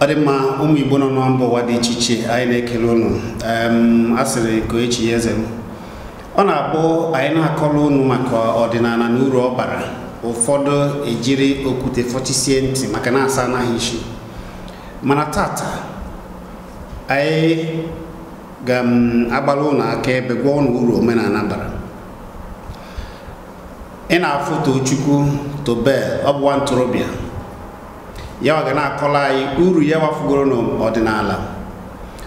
ọ dị mma ụmụ igbo nọ na mba ụwa dị iche iche anyị na-ekele ụnụ a sịrị nke echi eze m ọ na-abụ anyị na-akọrọ ụnụ maka ọdịnala na uru ọ bara ụfọdụ ejiri okwute fọtisie ntị maka na asa anaghị isi mana tata anyị ga-agbara ụlọ aka ebe gwa ụlọ uru omenala bara ị na-afụ Tochukwu Tobel ọ bụwa ntorobịa yawa ga na-akọla anyị uru ya wafugoro n'ọdịnala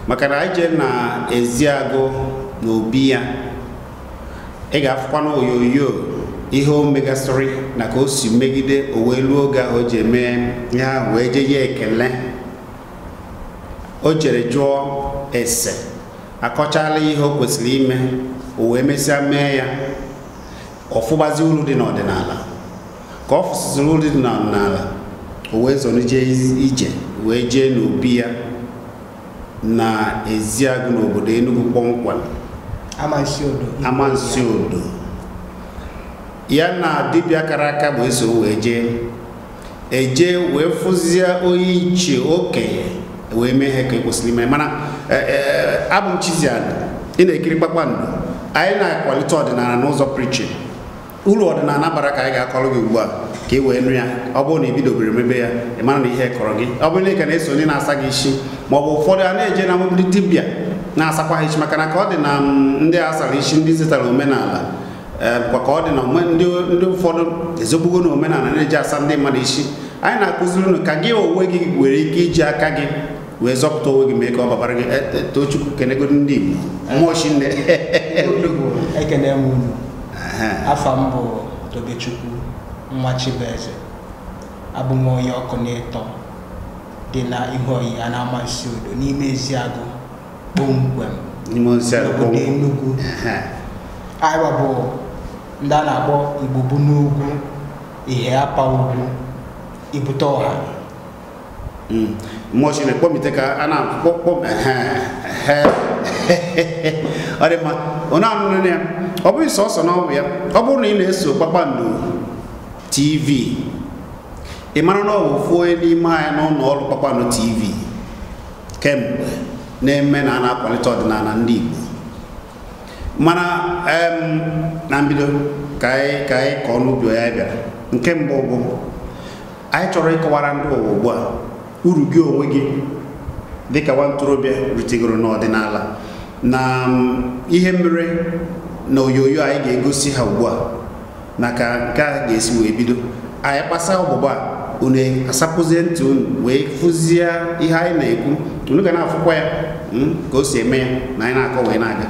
maka na anyị jee na eziagụ na obi ya ị ga-afụkwa na onyonyo ihe o megasịrị na ka o si megide o wee luo oge ahụ o ji eme ya wee je ya ekele o jere jụọ ese akọchala ihe o kwesịrị ime o wee mesịa mee ya ọfụgbazi uru dị n'ọdịnala ka ọ fụsịsịrị uru dị n'ọdịnala o wee zorije ije wee jee n'obi ya na eziagụ n'obodo Enugu kpọmkwem amansi odo ya na dibịa kara aka bụ eso wee jee eje wee fụzie onye iche okenye wee mee ihe ka ekwesịrị ime mana e, e, abụ m Chizialụ ị na-ekiri kpakpando anyị na-akwalite ọdịnala n'ụzọ prichin uru ọdịnala bara ka anyị ga-akọrọ gị ugbu a ka ị e wee nụ ya ọ bụrụ na ebidobere mebe ya ị mara na ihe kọrọ gị ọ bụrụ na ị na-eso na-asa gị isi ma ọ bụ ụfọdụ a na-eje na mgbidi dibịa na-asakwa ha isi maka na ka ọ dị na mm, ndị asara isi ndị setara omenala eh, ka ọ dị na ndị ụfọdụ ezogbugo na omenala na-eji asa ndị mmadụ isi anyị na-akụziri unu ka gị onwe gị were ike iji aka gị wee zọpụta onwe gị mee ka ọ babara gị eh, eh, tochukwu kenegodi ndị Igbo mmụọ chi nne afọ m bụ Tobechukwu nwa Chibueze abụ onye ọkụ na ịtọ dị na ihu a na nsi odo n'ime ezi Eziagụ kpomkwem n'obodo Enugu anyị bụ ndị a na-akpọ igbubu n'ugwu ihe apa ugwu ibute ọha mmụọ Chineke kpọmite ka a na-akpọ ọ dị mma onye anụnụ ya ọ bụghị sọsọ n'ọbụ ya ọ bụrụ na ị na-eso kpakpando tv ị mara na ọ bụ ofu onye n'ime anya n'ụlọ ọrụ kpakpando tv kemgbe na-eme na a na-akwalite ọdịnala ndị Igbo mana na mbido ka anyị ka anyị ka ọnụ ya bịara nke mbụ bụ anyị chọrọ ịkọwara ndị ụwa ugbu a uru gị onwe gị dịka nwa ntorobịa ritegoro n'ọdịnala na um, ihe mere na onyonyo anyị ga-egosi ha ugbu a na ka nke a ga-esi wee bido anyị kpasa ọgbụgba a asapụzie ntị unu wee fụzie ihe anyị na-ekwu unu ga na-afụkwa ya um, ka o si eme ya na anyị na-akọ wee na-aga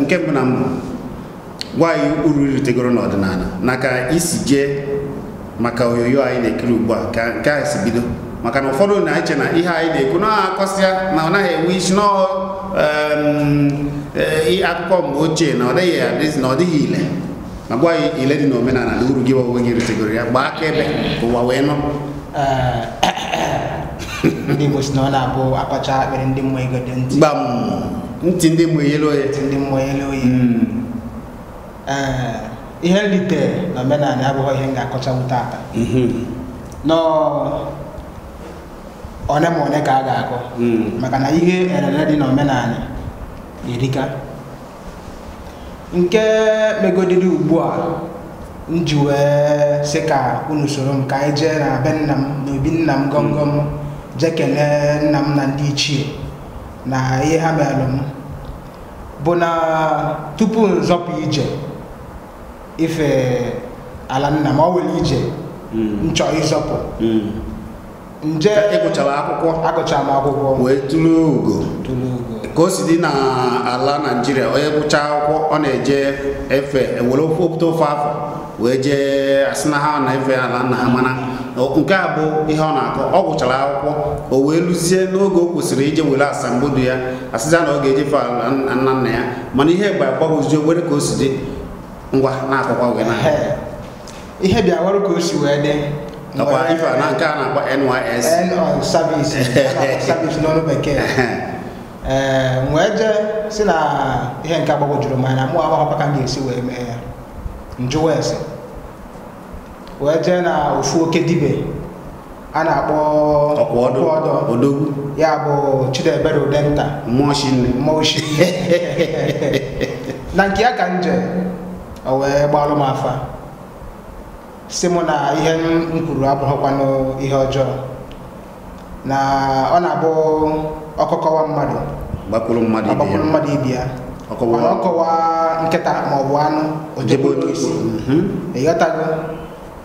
nke mbụ na mbụ gwa anyị uru ritegoro n'ọdịnala na ka isi jee maka onyonyo anyị na-ekiri ugbu a ka nke a si bido maka na ụfọdụ na-eche na ihe anyị na-ekwu na akọsịa na ọ naghị enwe isi n'ọhụụ akụkọ mgbe ochie na ọ dịghị na ọ dịghị ile ma gwa ya ile dị n'omenala na uru gị ọgwụgwọ gị ritegoro ya gbaa aka ebe ka ụwa wee nọ ndị Igbo si na ọ na-abụ akpacha akpịrị ndị mmụọ ego dị ntị gbam ntị ndị mmụọ yele oye ndị mmụọ yele oye ihe nrite na omenala abụghị ihe m ga-akọchanwu tata nọọ one ma one ka a ga-akọ maka na ihe erere dị n'omenala erika nke megodiri ugbu a m ji wee ka unu soro m ka anyị jee na be nna m na obi nna m gọmgọm hmm. jee kelee nna m na ndị ichie na ihe ha meelụ m bụ na tupu nzọpụ ije ife ala nna m ọ ije nchọ hmm. ịzọpụ hmm. nje ịgụchara akwụkwọ agụchara m akwụkwọ wee tụrụ ugo ka o si dị na ala naijiria onye gụchaa akwụkwọ ọ na-eje efe ewere ofe opụta ofe afọ wee jee asị na ha na efe ala nna ha mana nke a bụ ihe ọ na-akọ ọ gụchara akwụkwọ o wee lụzie n'oge o kwesịrị ije were asambodo ya asịza na ọ ga fe ala nna nna ya mana ihe gba agbagwozi were ka o si dị ngwa na-akọkwa wee na ihe bịa were ka o si wee dị nakwa ife na nke a na-akpọ NYS service service n'ọrụ e wee jee si na ihe nke agbagwojuru m anya mụ agbahọkwa ka m ga-esi wee mee ya njụ wes wee jee na ofu oke dibe a na-akpọ ọdọ ya bụ Chidebere Udenta na nke ya ka nje jee o wee gbalụ m afa si mụ na ihe m kwuru abụghịkwanụ ihe ọjọọ na ọ na-abụ ọkọkọwa mmadụ gbakwuru mmadụ ibi ya mana ọkọwa nkịta ma ọ bụ anụ ojebe otu isi mhm. ịghọtago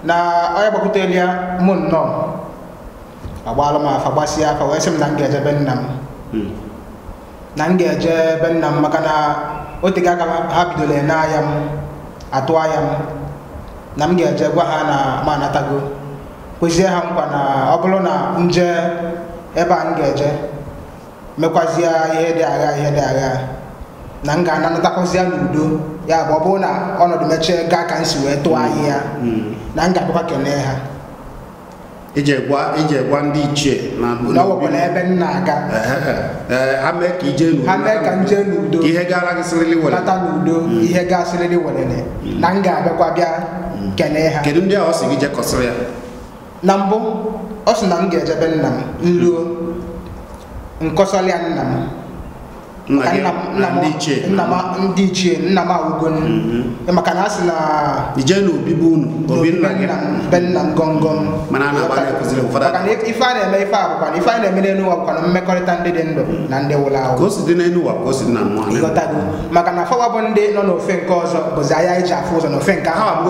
na onye gbakwutere ya mụ nnọọ agbaalụ m afa gbasịa afa wee sị m na m ga-eje be nna m hmm. na m ga-eje ebe nna m maka na o tega aka ha bidola ene anya m atụ anya m na m ga-eje gwa ha na m anatago kwezie ha nkwa na ọ bụrụ na nje ebe a m ga-eje mekwazie ihe dị agha ihe dị agha na m ga-anatakwazia n'udo ya bụ ọ bụrụ na ọnọdụ mechie gaa ka m si wee tụọ anyị ya na m ga-abịakwa kelee ha ije gwa ije gwa ndị ichie na ọwụkwala ebe m na-aga ha mee ka ije n'udo ha mee ka m jee n'udo ihe gara gị sịrịrị welele lata n'udo hmm. ihe ga-asịrịrị welele hmm. na m ga-abịakwa bịa kene ha kedu ndị a ọ sị gị jekọsịrị ya na mbụ ọ sị na m ga-ejebe nna m nruo nkọsọrọ nna m ndị ichie nna m awụgo mhm. maka na a sị na ije n'obibi unu be nna m gọngọm maka na ife a na-eme ife abụkwa ife a na-eme n'elu ụwa bụkwa na mmekọrịta ndị dị ndụ na ndị nwụrụ maka na fọwa bụ ndị nọ n'ofe nke ọzọ bụzi ahịa iji e afụ ụzọ n'ofe nke ahụ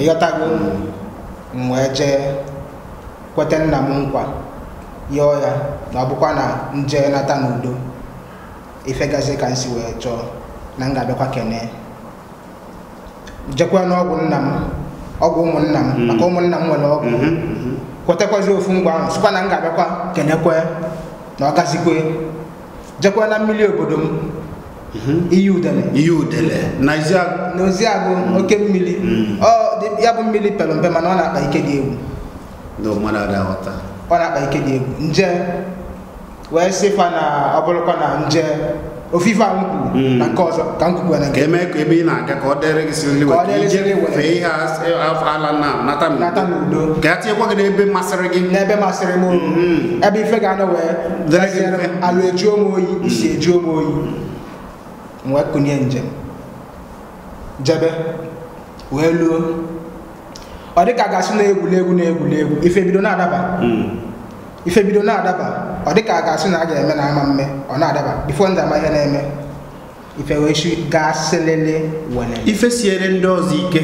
ịghọtago m wee jee kweta nna m nkwa yọọ ya na ọ bụkwa na nje nata n'udo ifegazi ka nsi si wee chọọ na m ga-abịakwa kene jekwa n'ọgwụ nna m ọgwụ ụmụnna m mm-hmm. maka ụmụnna m nwere ọgwụ mm-hmm, mm-hmm. kwetakwazi ofu ngwa ahụ sịkwa na m ga-abịakwa kenekwe na ọ gazikwe jekwa na mmiri obodo m iyi na oke mmiri ya bụ mmiri pere mpe mana ọ na-akpa ike dị egwu ọ na-akpa ike dị egwu nje wee sịfa na ọ bụrụkwa na nje ofife a m na nke ọzọ ka m kwukwa na nke eme ka ebe ị na-aga ka ọ dịrị gị siri iwe ka ije fee ihe ala na nata n'udo ka a tinyekwa gị n'ebe masịrị gị n'ebe masịrị m ebe ife ga-anọ wee dịrị alụ eju ome oyi isi eju ome oyi m wee kunye njem jebe wee luo ọ dị ka a ga-asị na egwuregwu na egwuregwu ife bido na-adaba ife bido na-adaba ọ dị ka a ga-asị na a ga-eme na ama mme ọ na-adaba bifo ndị ama ihe na-eme ife wee chi gaa selele wele ife siere ndị ọzọ ike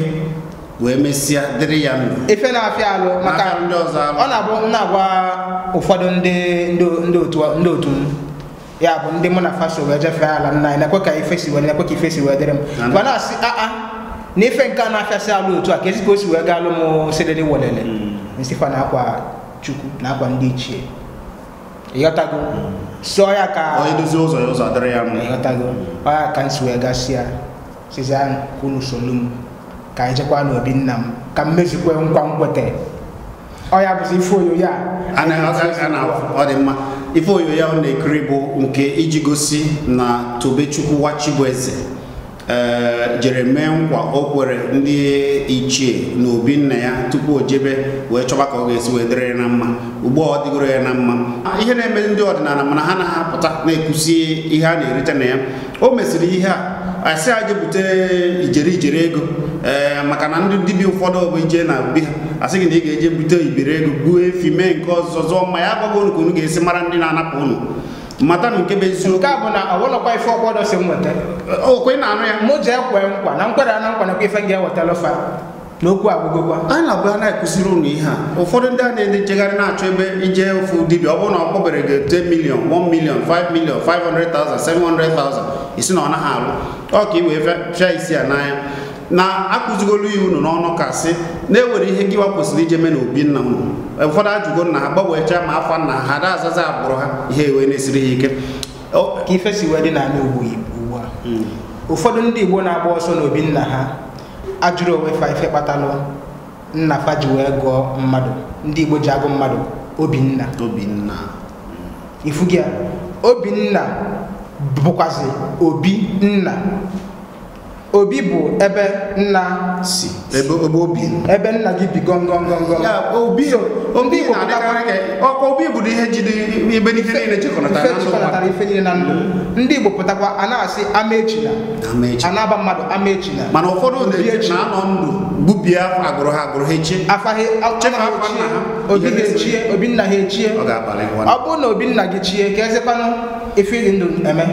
wee mesịa dịrị ya mma ife na-afịa alụ maka ndị ọzọ ọ na-abụ na-agwa ụfọdụ ndị ndị otu m ya bụ ndị mụ na faso wee jefee ala nna anyị na-ekwe ka ife si wee na-ekwe ka ife si wee dịrị m ma na-asị aa ah, ah, na ife nke a na-afịasị alụ otu a ka ezi ka o si wee gaa alụ m selele welele hmm. nsịkwa na akwa chukwu na-agwa ndị ichie ịghọtago sọ ya ka onye dozi ụzọ ya ụzọ dịrị ya mma ịghọtago ọ ya ka nsi wee gasịa sizi ahụ ka unu solu m ka anyị jekwa n'obi nna m ka m mezikwe nkwa nkwete ọ ya bụzi ife oyo ya ọ dị mma ife oyo ya ọ na-ekiri bụ nke iji gosi na tobechukwu wa bụ eze Eh, jere mee nkwa o kwere ndị ichie na obi nna ya tupu o jebe wee chọba ka ọ ga-esi wee dịrị na mma ugbu a ọ dịgoro ya na mma ah, ihe na-eme ndị ọdịnala mana ha na-apụta na-ekwusi ihe a na-erite na ya o mesịrị ihe a asị a jebute ijeri ijeri ego ee eh, maka na ndị dibịa ụfọdụ bụ ije na bi ha asị gị na ị ga-eje bute ibere ego buo efi mee nke ọzọ ma ya agbago unu ka unu ga-esi mara ndị na-anapụ unu mata nke bụ eziokwu nke a bụ na ọwụlọkwa ife ọkwa ọdọ si m weta okwe na anụ ya mụ jee kwee nkwa na nkwere na nkwa nakwa ife ga ewetala fa n'okwu agụgụkwa anyị na-abụ na-ekụziri unu ihe a ụfọdụ ndị a na-ede jegharị na-achọ ebe ije ofu dibịa ọ bụrụ na ọ kpọbere gị 10 million 1 million 5 million 500,000 700,000 isi na ọ naghị alụ ọ ka i wee fịa isi ya n'anya na akụzigolu iwu unu n'ọnụ ka na-ewere ihe nkiwa kwesịrị ije mee na obi nna unu ụfọdụ ajụgo nna ha gbanwechaa ma afọ nna ha Ada azaza agbụrụ ha ihe ewe na-esiri ha ike ka ife si wee dị na ala ugbu a hmm. ụfọdụ ndị igbo na-agba ọsọ n'obi nna ha ajụrụ onwe fa ife kpatalụ nna fa ji wee gụọ mmadụ ndị igbo ji agụ mmadụ obinna obinna ifu gị obinna bụkwazị obi nna obi bụ ebe nna si ebe obi ebe nna gị bi gọngọngọngọ obi ọkwa obi bụ ihe jide ebe ihe niile chekọtara ife niile na ndụ ndị igbo pụtakwa a na-asị ama echila anaba mmadụ ama echila mana ụfọdụ na-anọ ndụ gbubie agụrụ ha agụrụ ha echie afa ha ochie obi ha echie obi nna ha echie ọ bụrụ na obi nna gị chie ka ezekwanụ ife ịdị ndụ eme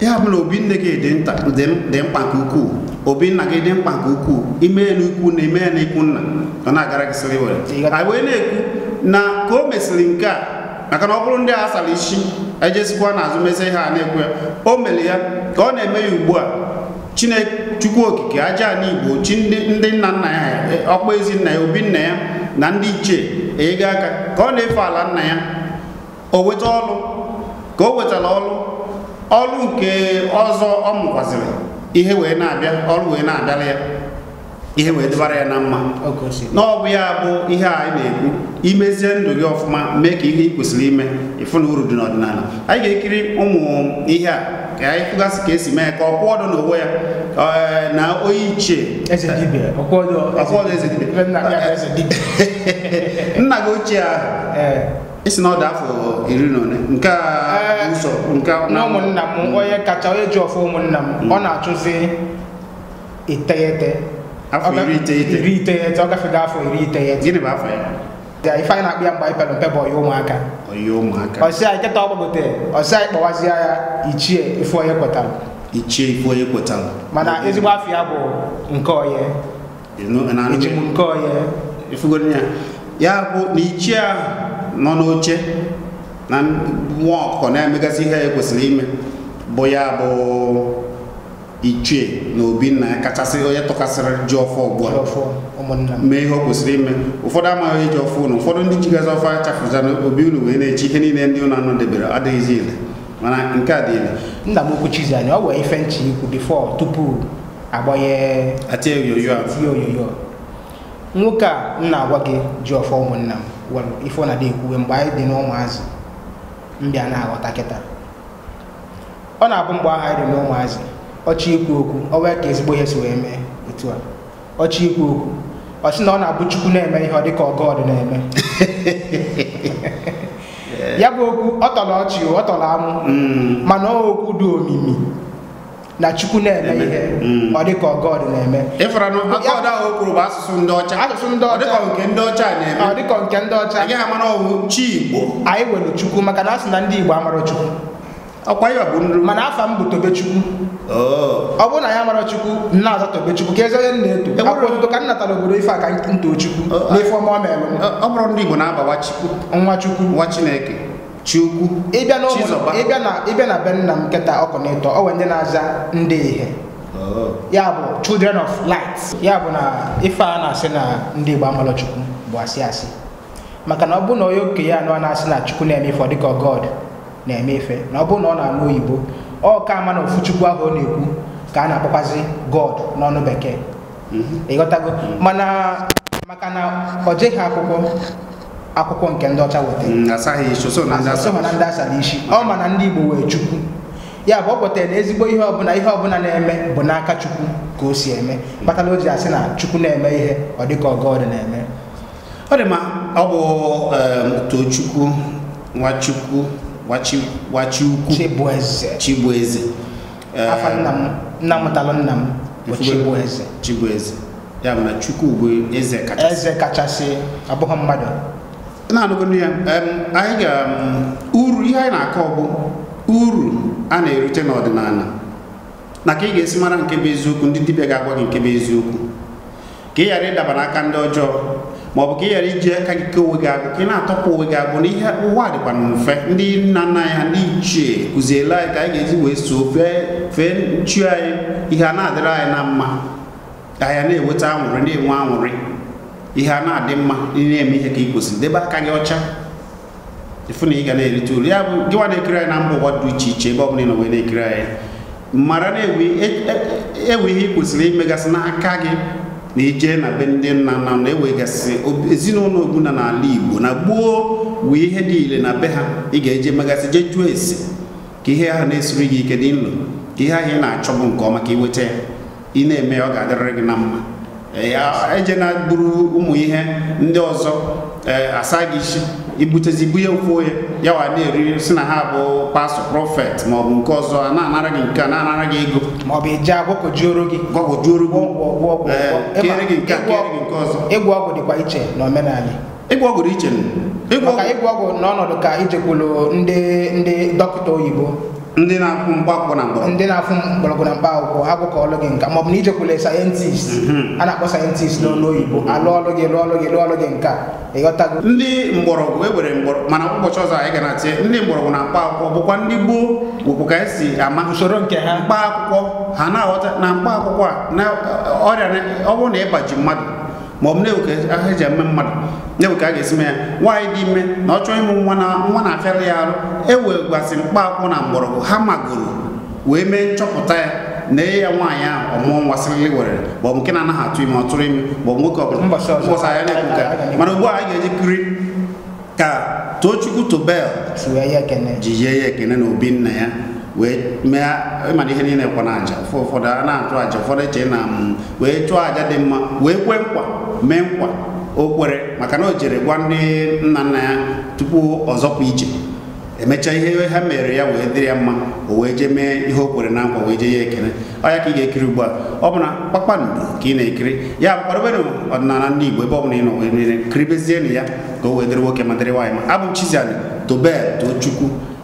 ya bụ na obi nne gị dị mkpa nke ukwuu obi nna gị dị mkpa nke ukwuu ime na na ime ya ikwu nna ọ na-agara gị sịrị were anyị wee na-ekwu na ka o mesịrị nke a maka na ọ bụrụ ndị a asara isi ejesikwa n'azụ mezi ihe a na-ekwu ya o mere ya ka ọ na-eme ya ugbu a chukwu okike aja igbo chi ndị nna nna ya ọkpọ ezi nna ya obi nna ya na ndị ichie enyego aka ka ọ na-efe ala nna ya o weta ọlụ ka o nwetara ọlụ ọrụ nke ọzọ ọ mụkwazịrị ihe wee na-abịa ọrụ wee na-abịara ya ihe wee dịbara ya na mma na ya bụ ihe a na-ekwu imezie ndụ gị ọfụma mee ka ihe ị kwesịrị ime ịfụ na uru dị n'ọdịnala anyị ga-ekiri ụmụ ihe a ka anyị fụgasị ka esi mee ka ọ kwụ ọdụ n'onwe ya eh, na onye ichie nna gị ochie ahụ eh. isi na ọ dị afọ iri na ole nke a ụzọ nke na ụmụnna m mm. onye kacha onye ji ọfụ ụmụnna m mm. ọ na-achụzi iteghete afọ iri iteghete ọ gafego afọ iri iteghete gịnị bụ afọ ya ife anyị na-akpụ ya mgbe anyị pere mpe bụ ọya ụmụaka ọya ụmụaka ọsị anyị kịta ọgbagote ọsị anyị kpọwazie ya ichie ife onye kwetara ichie ife onye kwetara mana ezigbo afọ ya bụ nke onye ejimụ nke onye ya bụ na ichie ahụ nọ n'oche na nwa ọkụkọ na-emegasị ihe ya kwesịrị ime bụ ya bụ ichie na obinna ya kachasị onye tọkasịrị ji ọfọ ugbu a mee ihe o kwesịrị ime ụfọdụ amaghị eji ọfọ unu ụfọdụ ndị jigazi ọfọ achafụza obi ụlọ wee na-echi ihe niile ndị unu anọ debere adịghịzi ile mana nke a dị ile nna m okwuchizi anya ọ wee ife nchi ikwu bifọ tupu agbanye atie oyoyo a nwoke a m na-agwa gị ji ọfọ ụmụnna m ife ọ na-adị mgbe anyị dị n'ụmụazị mbịa na-aghọta kịta ọ na-abụ mgbe ahụ anyị dị n'ụmụazị ọchị ikwu okwu ọ wee ka ezigbo ihe si wee mee etu a ọchị ikwu okwu ọ sị na ọ na-abụ chukwu na-eme ihe ọ dịka ọgọd na-eme ya bụ okwu ọ tọrọ ọchị ọ tọrọ amụ mm. mana ọ okwu dị omimi na chukwu na ihe mm. ọ dị ka na-eme na ahụ asụsụ ndị ọcha asụsụ ndị ọ nke ndị ọcha na-eme ọ nke ndị ọcha anyị amara ọwụ chi anyị nwere chukwu maka na asị na ndị Igbo amara chukwu ọkwa mana afa m bụ Tobechukwu oh. ọ bụrụ na ya mara Chukwu nna ka onye na-eto e obodo ife aka Chukwu oh, oh. n'ife ọma ọ mere ọ bụrụ ndị Igbo na-abawa Chukwu nwa Chukwu nwa Chineke Chukwu ịbịa na ịbịa na ịbịa na be nna m nkịta ọ nwere ndị na-aza ndị ihe oh. ya bụ children of light ya bụ na ife a na-asị na ndị Igbo amalochukwu bụ asị asị maka na ọ bụ na onye okenye a na-asị na Chukwu na-eme ife ọ dịka God na-eme ife na ọ bụ na ọ na-anụ oyibo ọ ka ama na ofu Chukwu ahụ ọ na-ekwu ka a na-akpọkwazi God n'ọnụ bekee mhm. ịghọtago mhm. mana maka na ọ jeghị akwụkwọ akwụkwọ nke ndị ọcha wetara asaghị mm, na ndị asara isi ọ ma na ndị igbo wee chukwu ya bụ ọ pụtara na ezigbo ihe ọbụla ihe ọbụla na-eme bụ n'aka chukwu ka o si eme kpatara o asị na chukwu na-eme ihe ọ dịka ọgọdị na-eme ọ dị ma ọ bụ tochukwu nwachukwu wachiukwu chibueze afa nna m nna mụtalụ nna m bụ chibueze chibueze ya bụ chukwu bụ eze kachasị eze kachasị abụghị mmadụ na-anụbụ ya anyị ga uru ihe anyị na-akọ bụ uru a na erute n'ọdịnala na ka ị ga-esi mara nke bụ eziokwu ndị dibịa ga-agwa gị nke bụ eziokwu ka ị ghara ịdaba n'aka ndị ọjọọ ma ọ bụ ka ị ghara iji aka gị ke onwe gị agụ ka ị na-atọpụ onwe gị agụ ihe ụwa dịkwa mfe ndị nna nna anyị ha ndị ichie kụziela anyị ka anyị ga-eji wee soo fee fee nchu anyị ihe a na-adịrị anyị na mma ka anyị na enweta anwụrị na-enwe anwụrị. ihe a na-adị mma ị na-eme ihe ka ị kwesịrị debe aka gị ọcha ịfụ na ị ga na-erite uru ya bụ gịnwa na-ekiri anyị na mba ụwa dị iche iche ebe ọ bụla ị nọ na-ekiri anyị mara na ewu e, e, e, ihe ị kwesịrị imegasị n'aka gị na ije na be ndị nna nna na-ewegasị ezinụlọ ogbuna n'ala Igbo na gboo wu ihe dị ile na be ha ị ga-eje megasị jee jụọ esi ka ihe ahụ na-esiri gị ike dị nlo ka ihe ahụ ị na-achọ bụ nke ọma ka ị nweta ya ị na-eme ya ọ ga-adịrịrị gị na mma ya ejena buru ụmụ ihe ndị ọzọ e, asa gị isi ibutezi ibu ya ofu onye ya wa na-eri si na ha bụ pastọ prọfet ma ọ bụ nke ọzọ a na-anara gị nke a na-anara gị ego ma ọ bụ ije agwọkojuoro gị gwọkojuoro gị e, kere gị nke a kere gị nke ọzọ ịgwọ ọgwụ dịkwa iche na n'omenala ịgwọ ọgwụ dị iche ịgwọ ọgwụ n'ọnọdụ ka ijekwulu ndị ndị dọkịta oyibo ndị na-afụ mgbakọ na mgbọrọgwụ ndị na-afụ mgbọrọgwụ na mkpa akwụkwọ ha bụka ọlụ gị nka maọbụ na ijekwule sayentist mhm. a na-akpọ sayentist n'olu oyibo alụ ọlụ gị lụọ ọlụ gị lụọ ọlụ gị nka ịghọtago ndị mgbọrọgwụ ewere mgbọrọgwụ mana ụbọchị ọzọ anyị ga na tie ndị mgbọrọgwụ na mkpa akwụkwọ bụkwa ndị gboo wepụ ka esi ama usoro nke ha mkpa akwụkwọ ha na-aghọta na mkpa akwụkwọ a ọrịa ọ bụrụ na ịbaji mmadụ ma ọ bụ na-ewe eji eme mmadụ na-ewe ka a ga-esi me ya nwaanyị dị ime na ọ chọọ ịmụ nwa na nwa na-afịarị ya arụ ewegwasị mkpa akwụ na mgbọrọgwụ ha magoro wee mee nchọpụta ya na enye ya nwaanyị ahụ ọmụọ nwa sịrịlị were ma nke na-anaghị atụ ime ọ tụrụ ime ma ọ bụ nwoke ọbụla ya na ekwuka mana ugbu a anyị ga-eji kiri ka tochukwu tobel ji yie ya ekene na obi nna ya wee mee ịmana ihe niile kwa na aja ụfọdụ a na atụ aja ụfọdụ eche na mm, wee chụọ aja dị mma wee kwee nkwa mee nkwa o kwere maka na o jere gwa ndị nna nna ya tupu ọzọpụ ije emechaa ihe ha mere ya wee dịrị ya mma o wee jee mee ihe o kwere na nkwa wee jee ya ekele ọ ya ka ị ga-ekiri ugbu a ọ bụ na kpakpando ka ị na-ekiri ya bụkwadoberụ ọdịnala ndị Igbo ebe ọ bụla ị nọ wee kiribezienụ ya ka o wee dịrị nwoke ma dịrị nwaanyị ma abụ m Chizzy Ani tobel too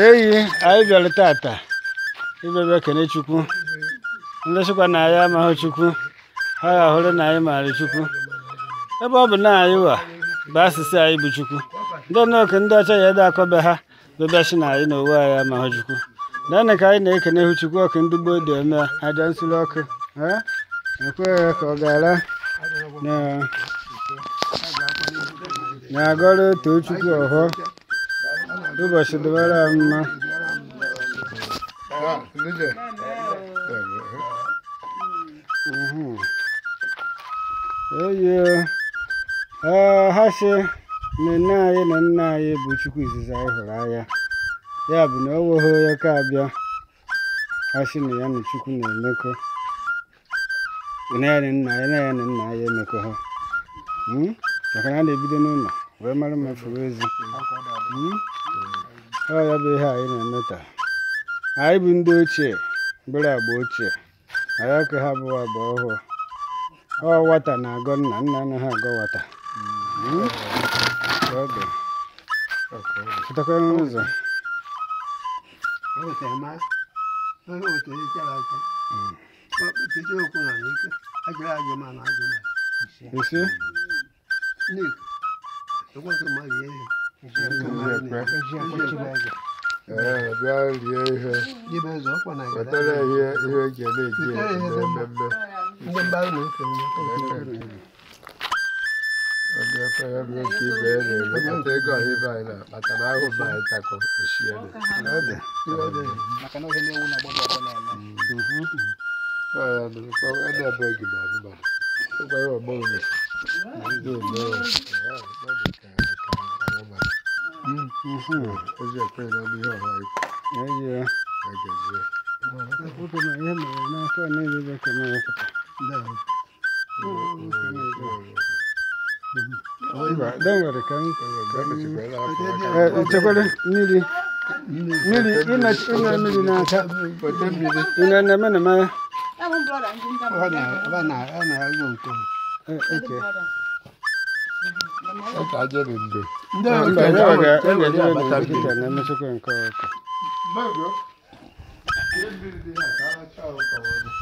eyi anyị bịara tata ịbịabịa kene chukwu ndị chịkwa na anyị amaghị chukwu ha ga-ahụrụ na anyị maara chukwu ebe ọ bụ na anyị wa bụ asịsị anyị bụ chukwu ndị nọke ndị ọcha ya ede akọbe ha bebịachi na anyị na owe anyị amaghị chukwu naanị ka anyị na-ekene hụ chukwu ọkụ ndị gboo dị eme aja nsuru ọkụ ekweghị ka ọ gara na agọrọ otu chukwu ọhụọ duba shi dubara ma eye ha si na nne anyị na nna anyị bụ chukwu izizi anyị hụrụ anya ya bụ na o nweghị onye ka abịa ha si na ya na chukwu na-emekọ na ya na nna ya na ya nna ya emekọ ha maka na na-ebido n'ụlọ wee mara ezi hmm? ọ ya bụ ihe anyị na-eme taa anyị bụ ndị ochie mgbere agba ochie anyị aka ha bụ agba ọhụụ ọ wata na-agọ nna nna anaghị agọ nwata pụtakwa hmm? n'ụzọ hmm. ee bịa rie ihe wetara ihe ihe eji na-eji ememme onye efere m nke ibe ya na-elekọta ego ọhịa ibe anyị na-akpata na ahụ ma anyị esiele edebeghị m abụmadụ ụgwọ ọgbọ ndị Mm-hmm. Is that pretty on the hill? Like, yeah, yeah. I can see it. Puta, mas eu não estou nem de ver que é mais. Não. Don't worry, come. Chocolate, Nili. Nili, ina ina Nili na ta. Ina na mana ma. Wana, wana, ana ngungu. Okay. Sasa aje ndio. ndị na-emesịkwa nke ọka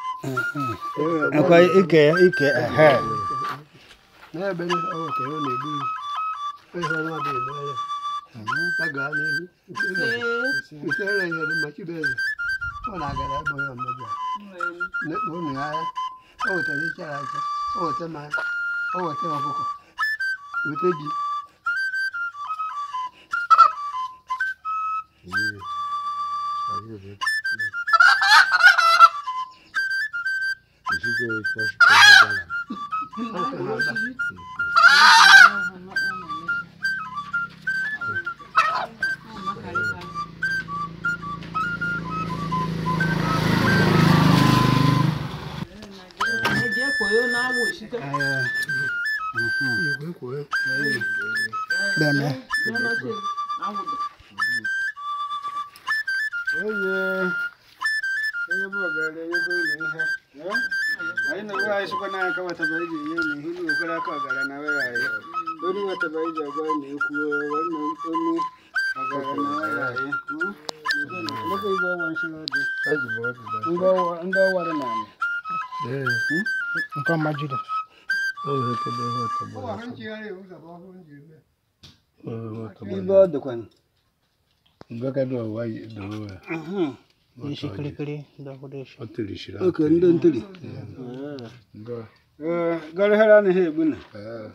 Mm-hmm. akwai ike ike ehe n'ebe ọ ka ọ na-egbu ihe ọnwa bụ emere a gaa n'ihu nsere ihe dị mmachi bụ ọ na-agara ebe onye ọmụbịa na ụmụ ya ahịa o wetara iche aja o weta mmanya o weta ọkụkọ weta ji Thank you. Deus, posso Deme. Oh yeah. ga-ere na ihe na ihe na okwere aka na were anyị onye na ekwu onye na ndị ọwa dị n'ala nke N'ishi kirikiri ndakoresha. Otirishira. Okay, ndo ntiri. Nga. Eh, gari hera ni he buna. Eh.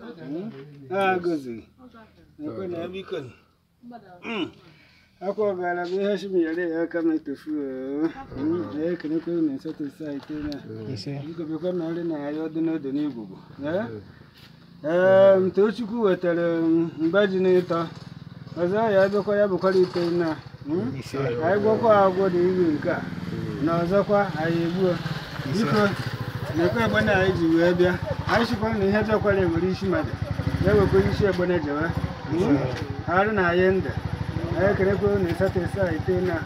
Ah, gozi. Nkwena yabikoni. Mm. Ako gara bi hashi mi yare ya kama tufu. Eh, kana ko ne sa to sai te na. Ise. Ko be ko na na ayo dino do ni gugu. Eh? Eh, eh. eh. eh mtochukwu wetara mbaji n'ịtọ. Ọzọ ya abịakwa ya bụkwara ite na. anyị gwọkwa agwọ na iri nke a na ọzọkwa anyị egbuo biko na-ekwe egbene anyị ji wee bịa anyị chịkwa na ihe jọkwara enwere isi mmadụ e na-ewekwa isi egbene jewe arụ na anyị ndụ anyị ekerekwa na ịsatọ ịsa ite na